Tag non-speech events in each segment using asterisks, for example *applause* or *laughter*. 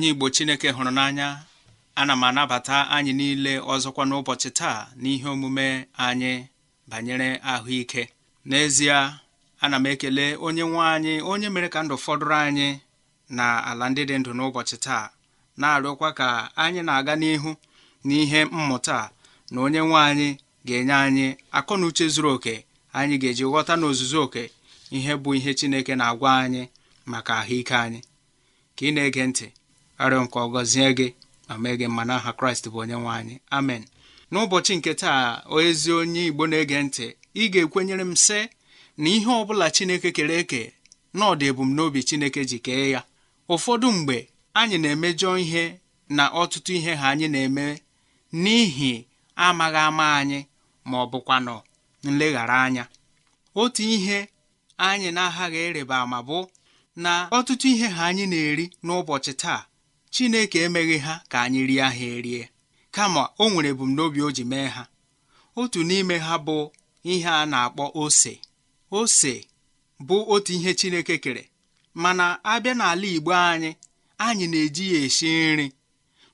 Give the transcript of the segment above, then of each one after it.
onye Igbo Chineke hụrụ n'anya ana m anabata anyị niile ọzọkwa n'ụbọchị taa n'ihe omume anyị banyere ahụike n'ezie ana m ekele onye nwe anyị onye mere ka ndụ fọdụrụ anyị na ala ndị dị ndụ n'ụbọchị taa na-arịọkwa ka anyị na-aga n'ihu n'ihe mmụta na onye nwe anyị ga-enye anyị akọ na uche zuru oke anyị ga-eji ghọta n'ozuzu oke ihe bụ ihe Chineke na-agwa anyị maka ahụike anyị ka ị na-ege ntị arịọ nke ọgọzie gị ma mee gị mma n'aha kraịst bụ onye nwe anyị amen n'ụbọchị nke taa ezi onye igbo na-ege ntị ị ga-ekwenyere m sị na ihe ọ bụla chineke kere eke na ọ ebumnobi chineke ji kee ya ụfọdụ mgbe anyị na-emejọ ihe na ọtụtụ ihe ha anyị na-eme n'ihi amaghị ama anyị ma ọ bụkwanụ nleghara anya otu ihe anyị na-aghaghị ịrịba ma bụ na ọtụtụ ihe ha anyị na-eri n'ụbọchị taa Chineke emeghị ha ka anyị rie ha erie kama onwere nwere ebumnobi o ji mee ha otu n'ime ha bụ ihe a na-akpọ ose ose bụ otu ihe Chineke kere mana abịa n'ala Igbo anyị anyị na-eji ya esi nri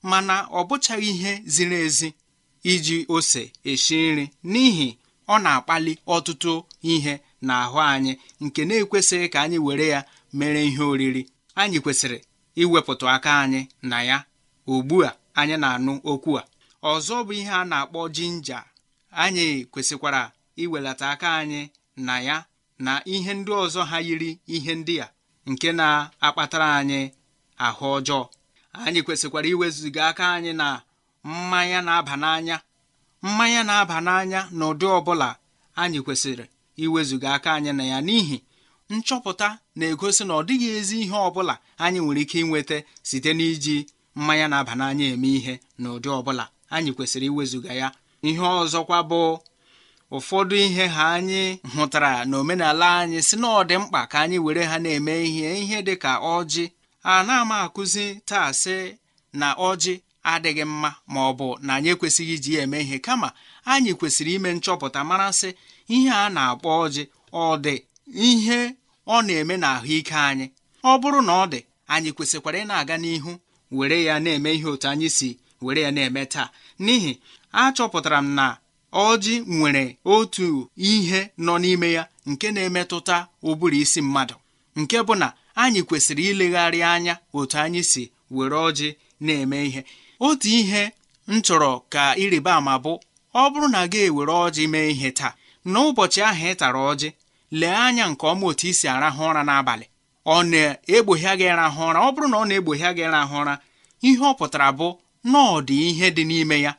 mana ọ bụchaghị ihe ziri ezi iji ose esi nri n'ihi ọ na-akpali ọtụtụ ihe n'ahụ anyị nke na-ekwesịghị ka anyị were ya mere ihe oriri anyị kwesịrị iwepụta aka anyị na ya ugbu a anyị na-anụ okwu a ọzọ bụ ihe a na-akpọ jinja anyị kwesịkwara iwelata aka anyị na ya na ihe ndị ọzọ ha yiri ihe ndị a nke na-akpatara anyị ahụ ọjọọ anyị kwesịkwara iwezụga aka anyị na mmanya na-aba n'anya mmanya na-aba n'anya n'ụdị ọbụla anyị kwesịrị iwezụga aka anyị na ya n'ihi nchọpụta na-egosi na ọ dịghị ezi ihe ọ bụla anyị nwere ike inweta site n'iji mmanya na-aba n'anya eme ihe na ụdị ọbụla anyị kwesịrị iwezuga ya ihe ọzọkwa bụ ụfọdụ ihe ha anyị hụtara na omenala anyị si na ọ dị mkpa ka anyị were ha na-eme ihe ihe dị ka ọjị a na-ama akụzi taa sị na ọjị adịghị mma ma ọ bụ na anyị ekwesịghị iji ya eme ihe kama anyị kwesịrị ime nchọpụta mara sị ihe a na-akpọ ọjị ọ dị ihe ọ na-eme n'ahụike anyị ọ bụrụ na ọ dị anyị kwesịkwara ị na-aga n'ihu were ya na-eme ihe otu anyị si were ya na-eme taa n'ihi achọpụtara m na ọjị nwere otu ihe nọ n'ime ya nke na-emetụta ụbụrụ isi mmadụ nke bụ na anyị kwesịrị ilegharị anya otu anyị si were ọjị na-eme ihe otu ihe m chọrọ ka ịrịba ama bụ ọ bụrụ na gị ewere ọjị mee ihe taa n'ụbọchị ahụ ị tara ọjị lee anya nke ọma otu i si arahụ ụra n'abalị ọ na egbohie gị rahụ ụra ọ bụrụ na ọ na-egbogha gị rahụ ụra ihe ọ pụtara bụ na ọ dị ihe dị n'ime ya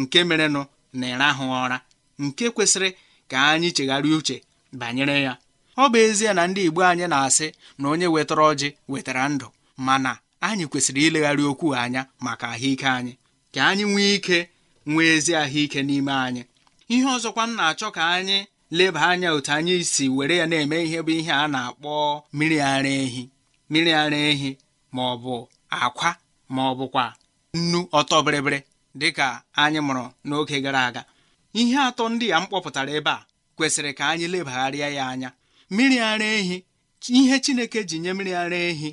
nke merenụ na ịrahụ ụra nke kwesịrị ka anyị chegharịa uche banyere ya ọ bụ ezie na ndị Igbo anyị na-asị na onye wetara ọjị wetara ndụ mana anyị kwesịrị ilegharị okwu anya maka ahụike anyị ka anyị nwee ike nwee ezi ahụike n'ime anyị ihe ọzọkwa m na-achọ ka anyị leba anya otu anyị si were ya na-eme ihe bụ ihe a na-akpọ mmiri ara ehi mmiri ara ehi ma ọ bụ akwa ma ọ bụkwa nnu ọtọ bịrịbịrị dịka anyị mụrụ n'oge gara aga ihe atọ ndị a m kpọpụtara ebe a kwesịrị ka anyị lebagharịa ya anya mmiri ara ehi ihe Chineke ji nye mmiri ara ehi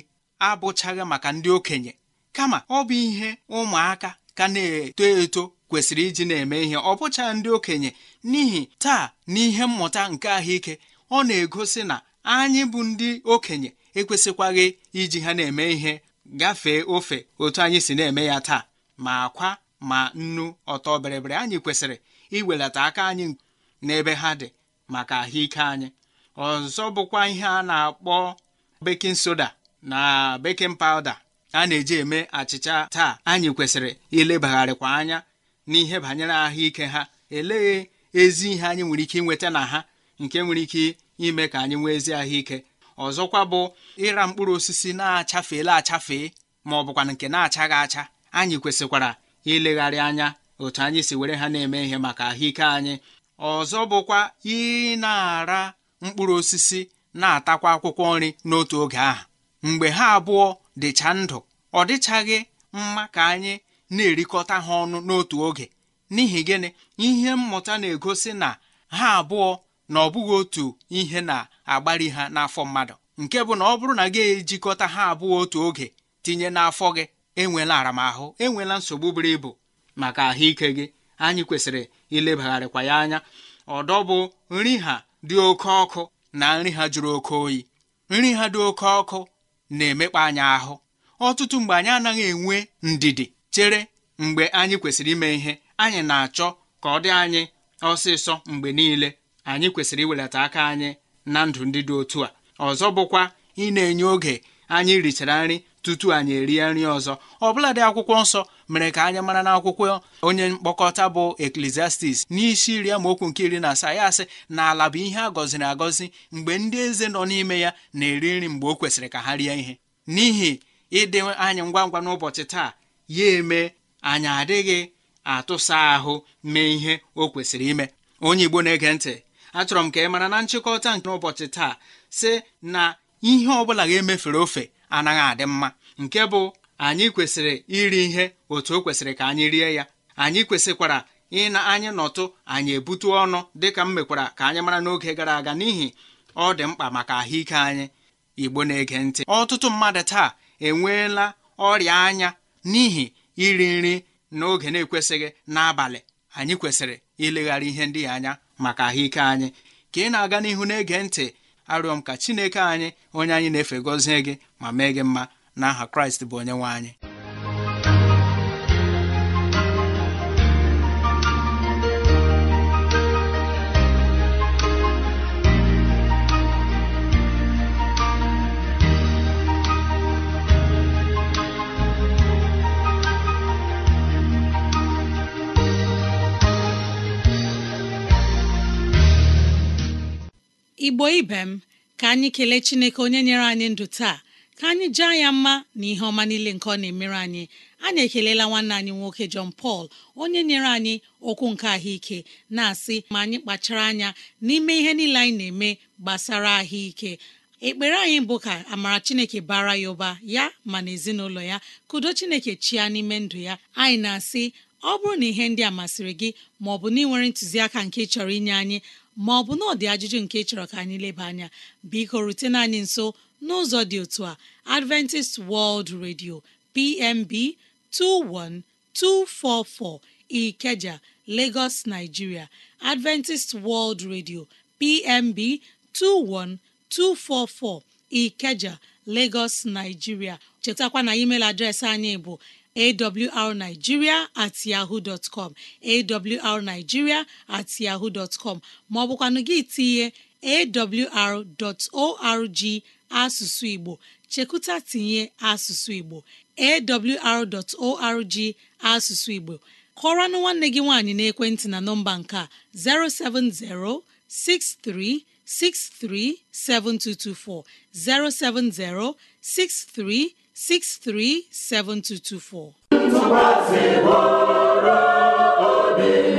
abụchaghị maka ndị okenye kama ọ bụ ihe ụmụaka ka na-eto eto kwesịrị iji na-eme ihe ọ bụcha ndị okenye n'ihi taa n'ihe mmụta nke ahụike ọ na-egosi na anyị bụ ndị okenye ekwesịkwaghị iji ha na-eme ihe gafee ofe otu anyị si na-eme ya taa ma akwa ma nnu ọtọ bịrịbịrị anyị kwesịrị iwelata aka anyị n'ebe ha dị maka ahụike anyị ọzọ bụkwa ihe a na-akpọ bekin soda na bekin pawda a na-eji eme achịcha taa anyị kwesịrị ilebagharịkwa anya n'ihe banyere ahụike ha elee ezi ihe anyị nwere ike nweta na ha nke nwere ike ime ka anyị nwee ezi ahụike ọzọkwa bụ ịra mkpụrụ osisi na-achafeela achafee ma ọ bụkwa nke na-achaghị acha anyị kwesịkwara ilegharị anya otu anyị si were ha na-eme ihe maka ahụike anyị ọzọ bụkwa ị na-ara mkpụrụ osisi na-atakwa akwụkwọ nri n'otu oge ahụ mgbe ha abụọ dịcha ndụ ọ dịchaghị mma ka anyị na-erikọta ha ọnụ n'otu oge n'ihi gịnị ihe mmụta na-egosi na ha abụọ na ọ bụghị otu ihe na-agbari ha n'afọ mmadụ nke bụ na ọ bụrụ na gị ejikọta ha abụọ otu oge tinye n'afọ gị enwela aramahụ enwela nsogbu buru ibu maka ahụike gị anyị kwesịrị ilebagharịkwa ya anya ọdọ bụ nri ha dị oke ọkụ na nri ha jụrụ oke oyi nri ha dị oke ọkụ na-emekpa anyị ahụ ọtụtụ mgbe anyị anaghị enwe ndidi chere mgbe anyị kwesịrị ime ihe anyị na-achọ ka ọ dị anyị ọsịsọ mgbe niile anyị kwesịrị iwelata aka anyị na ndụ ndị dị otu a ọzọ bụkwa ị na-enye oge anyị richara nri tutu anyị erie nri ọzọ dị akwụkwọ nsọ mere ka anyị mara n'akwụkwọ onye mkpokọta bụ Ecclesiastes n'isi iri amaokwu nke iri na asaa ya asị na ala bụ ihe a gọziri agọzi mgbe ndị eze nọ n'ime ya na-eri nri mgbe o kwesịrị ka ha rie ihe n'ihi ịdị anyị ngwa ngwa n'ụbọchị taa ya eme anyị adịghị atụsa ahụ mee ihe o kwesịrị ime onye Igbo na-ege ntị achọrọ m ka ị mara na nchịkọta nke n'ụbọchị taa si na ihe ọ bụla ga-emefere ofe anaghị adị mma nke bụ anyị kwesịrị iri ihe otu o kwesịrị ka anyị rie ya anyị kwesịkwara ị na anyị nọtụ anyị ebute ọnụ dịka m mekwara ka anyị mara n'oge gara aga n'ihi ọ dị mkpa maka ahụike anyị igbo na-ege ntị ọtụtụ mmadụ taa enweela ọrịa anya n'ihi iri nri n'oge na-ekwesịghị n'abalị anyị kwesịrị ileghara ihe ndị anya maka ahụike anyị ka ị na-aga n'ihu na-ege ntị arịọ m ka Chineke anyị onye anyị na-efe gọzie gị ma mee gị mma n'aha Kraịst bụ onye nwe anyị igbo ibe m ka anyị kelee chineke onye nyere anyị ndụ taa ka anyị jaa ya mma na ihe ọma niile nke ọ na-emere anyị anyị ekelela nwanne anyị nwoke John pal onye nyere anyị okwu nke ahụike na-asị ma anyị kpachara anya n'ime ihe niile anyị na-eme gbasara ahụike ekpere anyị bụ ka amara chineke bara ya ụba ya ma na ezinụlọ ya kudo chineke chia n'ime ndụ ya anyị na-asị ọ bụrụ na ihe ndị a masịrị gị ma ọ bụ na ị nwere ntụziaka nke chọrọ inye anyị ma ọ bụ na ọ dị ajụjụ nke chọrọ ka anyị leba anya biko rutena anyị nso n'ụzọ dị otu a Adventist World Radio PMB 21244 Ikeja Lagos Nigeria Adventist World Radio PMB 21244 Ikeja Lagos Nigeria chetakwa na email adreesị anyị bụ awrnigeria at yahoo dot com awrnigeria at yahoo dot com Ma ọ bụkwa asụsụ Igbo. Chikuta tinye asụsụ Igbo AWR asụsụ Igbo. Kọọranụ nwanne gị nwaanyị n'ekwentị na nọmba nke a. O70 6363 7224 O70 7224 637224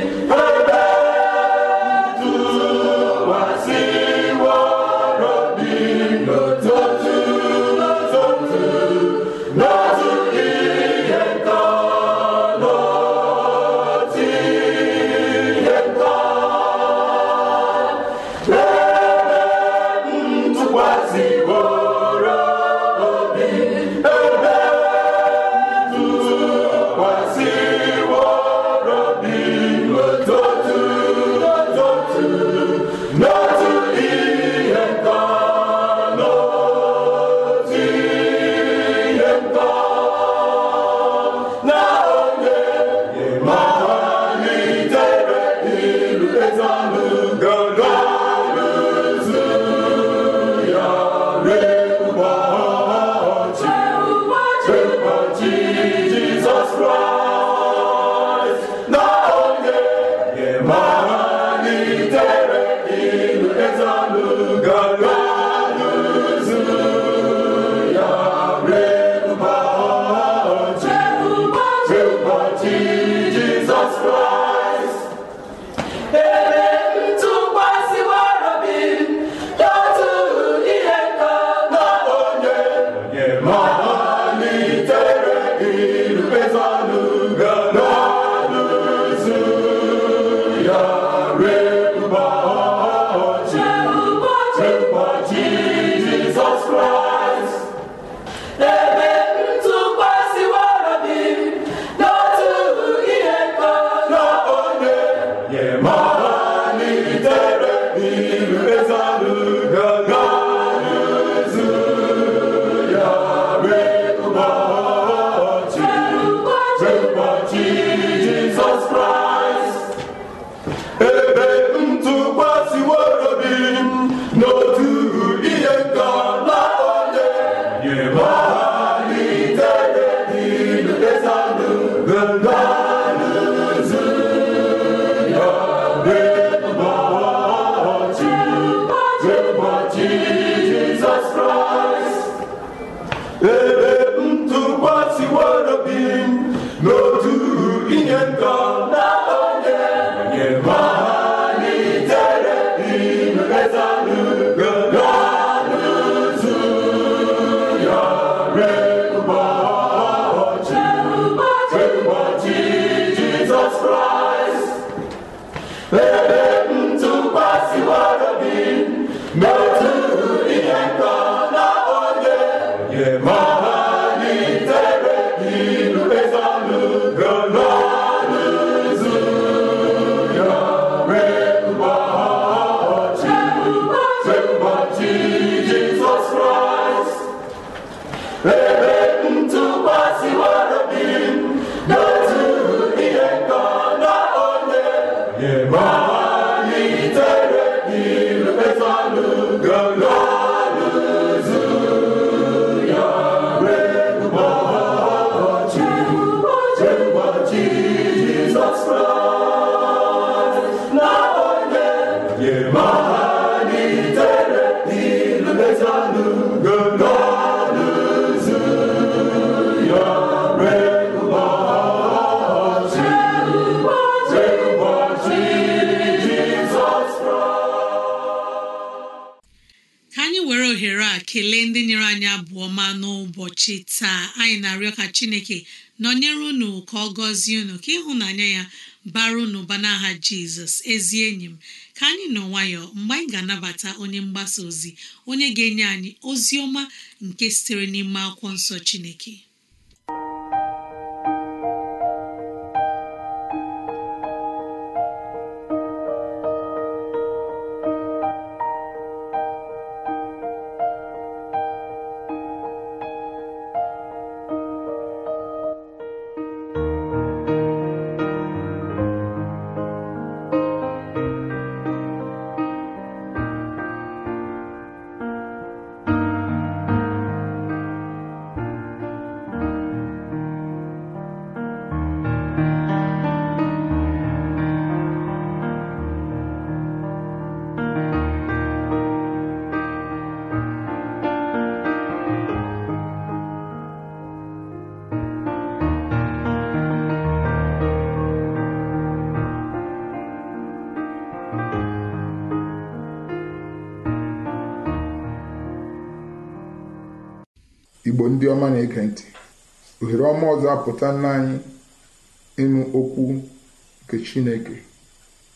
Hey! *laughs* ụbọchị taa anyị na-arịọ ka chineke nọnyere unu ka ọ gọzie unu ka ịhụnanya ya bara unu ụba n'aha jizọs ezi enyi m ka anyị nọ nwayọ mgbe anyị ga-anabata onye mgbasa ozi onye ga-enye anyị ozi ọma nke sitere n'ime akwụkwọ nsọ chineke igbo ndị ọma na-ege ntị ohere ọma ọzọ apụta anyị ịnụ okwu nke chineke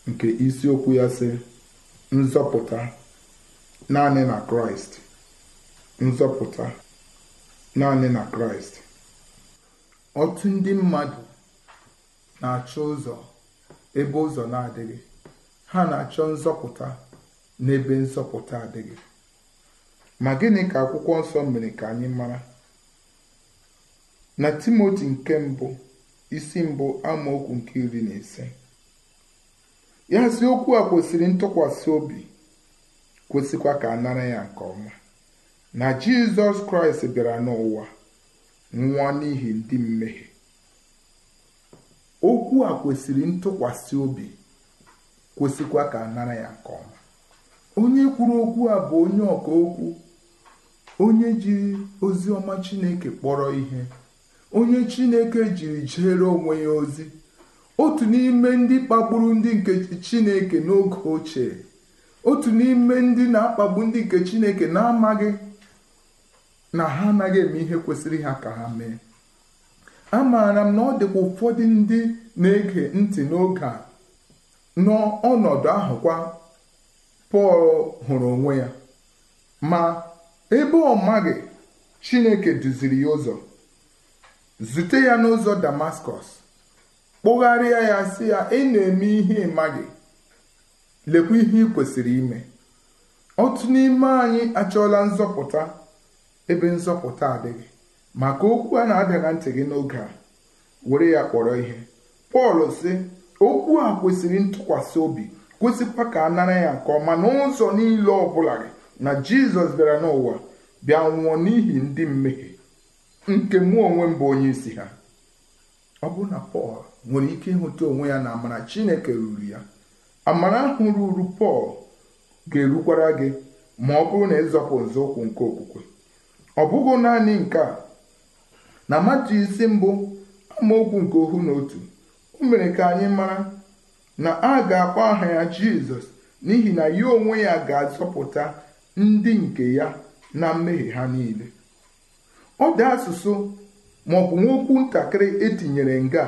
nke isiokwu ya sị nzọpụta naanị na kraịst nzọpụta naanị na kraịst otu ndị mmadụ na-achọ ụzọ ebe ụzọ na-adịghị ha na-achọ nzọpụta n'ebe nzọpụta adịghị Ma gịnị ka akwụkwọ nsọ mere ka anyị mara? Na Timoti nke mbụ isi mbụ amaokwu nke iri na ise ya si okwu a kwesịrị ntụkwasị obi kwesịkwa ka a nara ya nke ọma na Jizọs Kraịst bịara n'ụwa nwa n'ihi ndị mmehie okwu a kwesịrị ntụkwasị obi kwesịkwa ka a nara ya nke ọma onye kwuru okwu a bụ onye ọka okwu onye jiri ozi ọma chineke kpọrọ ihe onye chineke jiri jere onwe ya ozi otu n'ime ndị kpagburu ndị nke chineke n'oge ochie otu n'ime ndị na-akpagbu ndị nke chineke na-amaghị na ha anaghị eme ihe kwesịrị ha ka ha mee a maara m na ọ dịkwa ụfọdụ ndị na-ege ntị n'oge a n'ọnọdụ ahụ kwa Pọl hụrụ onwe ya ma ebe ọ maghị chineke duziri ya ụzọ zute ya n'ụzọ damaskọs kpụgharịa ya sị ya ị na-eme ihe maghị lekwa ihe ị kwesịrị ime otu n'ime anyị achọọla nzọpụta ebe nzọpụta adịghị maka okwu a na adịghị ntị gị n'oge a were ya kpọrọ ihe pọl si okwu a kwesịrị ntụkwasị obi kwesịkwa ka a nara ya nke ọma n'ụzọ niile ọ bụla gị na jizọs bịara n'ụwa bịa nwụọ n'ihi ndị mmehie nke mụ onwe m bụ onye isi ha ọ bụrụ na pọl nwere ike ịhụta onwe ya na amara chineke ruru ya amara ahụ ruru pọl ga-erukwara gị ma ọ bụrụ na ịzọpụ nzọụkwụ nke okwukwe ọ bụghị naanị nke a na matu isi mbụ amaokwu nke ohu na otu o mere ka anyị mara na a ga-akpọ aha ya jizọs n'ihi na ya onwe ya ga-azọpụta ndị nke ya na mmehie ha niile ọ dị asụsụ bụ nwokwu ntakịrị etinyere nga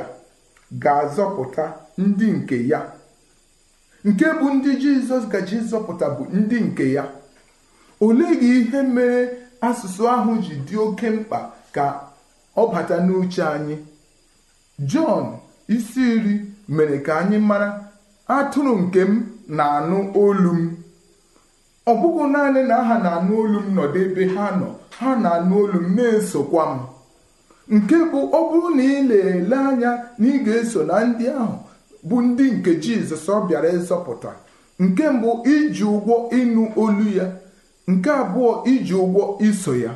ga-azọpụta ndị nke ya nke bụ ndị jizọs gaji zọpụta bụ ndị nke ya olee gị ihe mere asụsụ ahụ ji dị oke mkpa ka ọ bata n'uche anyị jọn isi iri mere ka anyị mara atụrụ nke m na-anụ olu m ọ bụghị naanị na ha na-anụ olu m nọdụ ebe ha nọ ha na-anụ olu m na-esokwa m nke bụ ọ bụrụ na ị na-ele anya na ị ga-eso na ndị ahụ bụ ndị nke jizọs ọ bịara ịzọpụta nke mbụ iji ụgwọ ịnụ olu ya nke abụọ iji ụgwọ iso ya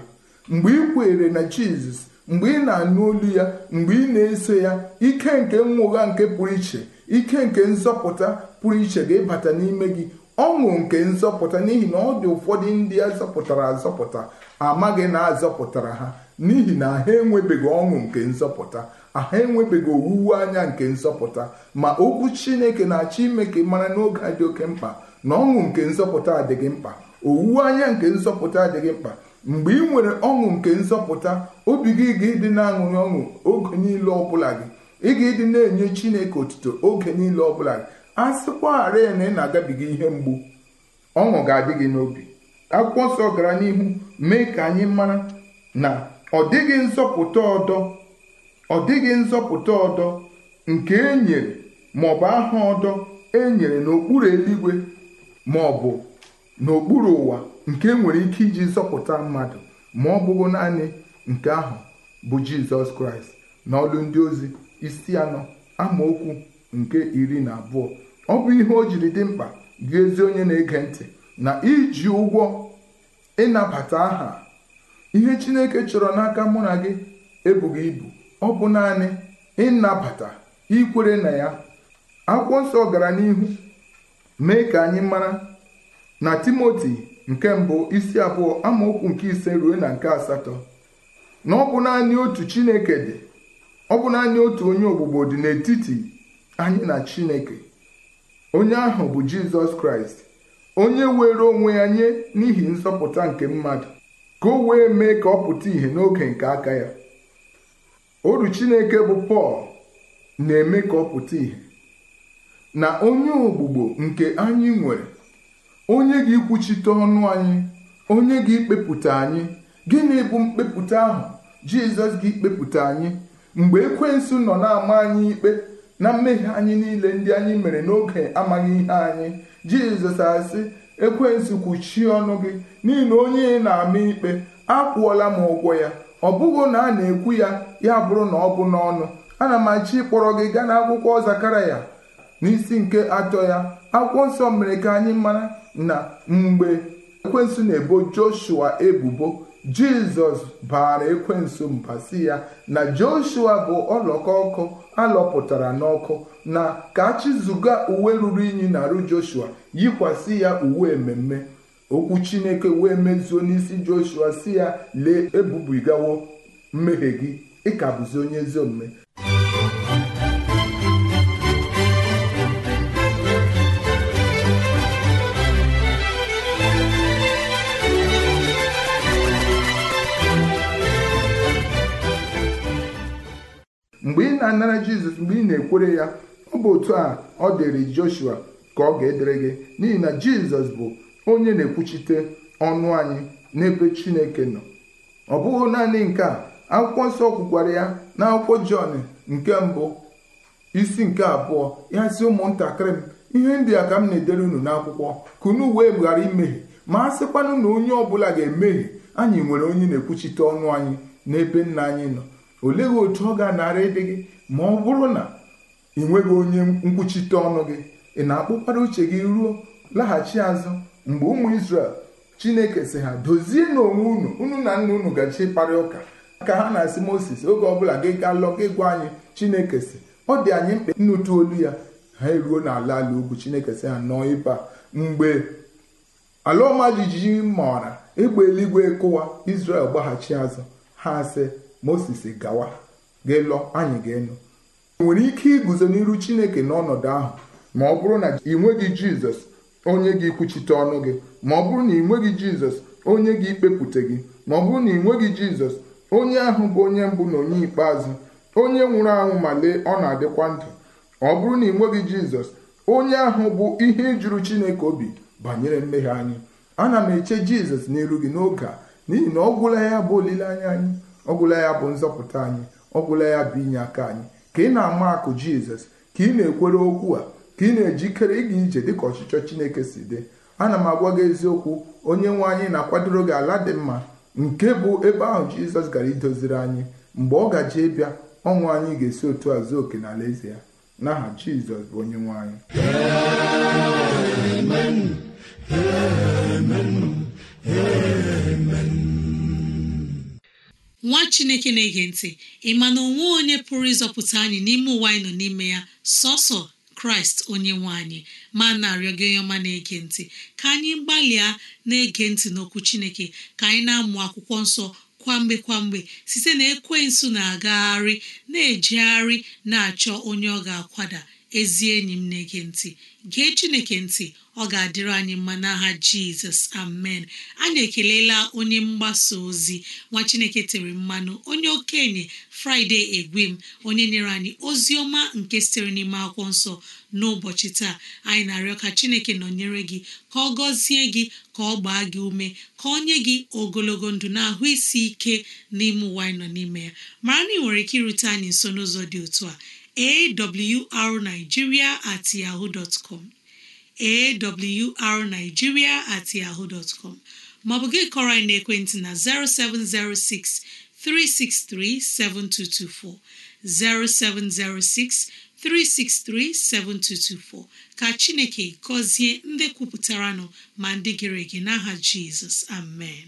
mgbe ị kwere na jizọs mgbe ị na-anụ olu ya mgbe ị na-eso ya ike nke mwụgha nke pụrụ iche ike nke nzọpụta pụrụ iche ga-ịbata n'ime gị ọṅụ nke nzọpụta n'ihi na ọ dị ụfọdụ ndị a zọpụtara azọpụta amaghị na azọpụtara ha n'ihi na ha enwebeghị ọṅụ nke nzọpụta aha enwebeghị owuwe anya nke nzọpụta ma okwu chineke na-achọ ime ka mara n'oge a dị oke mkpa na ọṅụ nke nzọpụta adịghị mkpa owuwe anya nke nzọpụta adịghị mkpa mgbe ị nwere ọṅụ nke nzọpụta obi gị ga-ịdị na-aṅụrị ọṅụ oge niile ọbụla gị ị ga-ịdị na-enye chineke otuto oge niile ọbụla gị a sịkwarị na ị na-agabiga ihe mgbu ọṅụ ga-adị gị n'obi akwụkwọ nsọ gara n'ihu mee ka anyị mara na ọ dịghị nzọpụta ọdọ ọ dịghị nzọpụta ọdọ nke e nyere maọbụ aha ọdọ e nyere n'okpuru eluigwe maọbụ n'okpuru ụwa nke e nwere ike iji zọpụta mmadụ ma ọ bụghị naanị nke ahụ bụ jizọs kraịst na ọlụ ndị ozi isi anọ amaokwu nke iri na abụọ ọ bụ ihe o jiri dị mkpa gị ezi onye na-ege ntị na iji ụgwọ ịnabata aha ihe chineke chọrọ n'aka mụ na gị ebughị ibu ọ bụ naanị ịnabata ikwere na ya akwụkwọ nsọ gara n'ihu mee ka anyị mara na timoti nke mbụ isi abụọ amaokwu nke ise ruo na nke asatọ na ọ bụ naanị otu chineke dị ọ bụ naanị otu onye ogbugbo dị n'etiti anyị na chineke onye ahụ bụ jizọs kraịst onye were onwe ya nye n'ihi nsọpụta nke mmadụ ka o wee mee ka ọ pụta ìhè n'oge nke aka ya oru chineke bụ pọl na-eme ka ọ pụta ìhè na onye ogbugbo nke anyị nwere onye ga-ekwuchite ọnụ anyị onye ga-ekpepụta anyị gịnị bụ mkpepụta ahụ jizọs ga-ekpepụta anyị mgbe ekwensu nọ na-ama anyị ikpe na mmehie anyị niile ndị anyị mere n'oge amaghị ihe anyị jizọs asị ekwensu kwuchie ọnụ gị n'ihi na onye na-ama ikpe akwụọla m ụgwọ ya ọ bụghị na a na-ekwu ya ya bụrụ na ọ bụ n'ọnụ ana m achọ ịkpọrọ gị gaa n'akwụkwọ zakaraya n'isi nke atọ ya akwụkwọ nsọ mere ka anyị mara na mgbe ekwensu na-ebo joshua ebubo jizọs baara ekwensu mba si ya na joshua bụ ọlọkọ ọkụ alọpụtara n'ọkụ na ka chizuga uwe ruru unyi na arụ joshua yikwasị ya uwe mmemme okwu chineke wee mezuo n'isi joshua si ya lee ebubigawo mmehie gị ịka bụzi onye ezi omume ga anara jizọs mgbe ị na-ekwere ya ọ bụ otu a ọ dịrị joshua ka ọ ga-edere gị n'ihi na jizọs bụ onye na-ekwuchite ọnụ anyị n'ebe chineke nọ ọ bụghị naanị nke a akwụkwọ nsọ kwukwara ya na akwụkwọ jọn nke mbụ isi nke abụọ ya si ụmụntakịrị m ihe ndị a ka m na-edere unu n'akwụkwọ ka unu wee ghara imehie ma a sịkwanụ na onye ọbụla ga-emehie anyị nwere onye na-ekwuchite ọnụ anyị n'ebe nna anyị nọ olee otu ọ ga-anara ịdị gị ma ọ bụrụ na ị nweghị onye nkwuchite ọnụ gị ị na-akpụkwara uche gị ruo laghachi azụ mgbe ụmụ Izrel Chineke si ha dozie n'onwe unu unu na nna unu gachi ịkparị ụka ka ha na-asị Moses oge ọbụla gị gaa lọ gị gwa anyị Chineke si ọ dị anyị mkpa nnụtụ olu ya ha eruo n'ala ala ugwu Chineke si ha nọọ ịba mgbe ala ọma jijiji maara egbe eluigwe kụwa isrel gbaghachi azụ ha sị Moses gawa ga-elọ anyị ga-enu nwere ike iguzo n'iru chineke n'ọnọdụ ahụ ma ọ bụrụ na ị nweghị jizọs onye gị kwuchite ọnụ gị ma ọ bụrụ na ị nweghị jizọs onye gị ikpepụta gị ma ọ bụrụ na ị nweghị jizọs onye ahụ bụ onye mbụ na onye ikpeazụ onye nwụrụ anwụ ma lee ọ na-adịkwa ndụ ọ bụrụ na ị nweghị jizọs onye ahụ bụ ihe ijuru chineke obi banyere mmehie anyị ana m eche jizọs n'iru gị n'oge a n'ihi na ọ gwụla ya bụ olileanya anyị ọ gwụla ya bụ nzọpụta anyị ọgwụla ya bụ inye aka anyị ka ị na-ama akụ jizọs ka ị na-ekwere okwu a ka ị na-ejikere ịga ije dịka ọchịchọ chineke si dị ana m agwa gị eziokwu onye nwe anyị na-akwadoro gị ala dị mma nke bụ ebe ahụ jizọs gara idoziri anyị mgbe ọ gaje ịbịa ọnwụ anyị ga-esi otu azụ zuo oke n'ala eze ya n'aha jizọs bụ onye nwe anyị amen amen amen nwa chineke na-ege ntị ị ma na onwe onye pụrụ ịzọpụta anyị n'ime ụwa anyị nọ n'ime ya sọsọ kraịst onye nwe anyị ma na-arịọ gị onye ọma na-ege ntị ka anyị gbalịa na-ege ntị n'okwu chineke ka anyị na-amụ akwụkwọ nsọ kwamgbe kwamgbe site na nsụ na-agagharị na-ejegharị na-achọ onye ọ ga-akwada ezi enyi m na-ege ntị gee chineke ntị ọ ga-adịrị anyị mma n'aha jizọs amen anyị ekelela onye mgbasa ozi nwa chineke tere mmanụ onye okenye fraịde egwem onye nyere anyị ozi ọma nke sitere n'ime akwụkwọ nsọ n'ụbọchị taa anyị na-arịọ ka chineke nọnyere gị ka ọ gọzie gị ka ọ gbaa gị ume ka ọ nye gị ogologo ndụ na ahụ isi ike n'ime ụwa anyị nọ n'ime ya mara na ị nwere ike irute anyị nso n'ụzọ dị otu a awrnigeria at yahoo com awrnigeria at yahoo com maọbụ gị kọrọ anyị na 0706 363 0706 363 7224 ka Chineke gọzie ndị kwupụtara nọ ma ndị gere ege n'aha Jizọs amen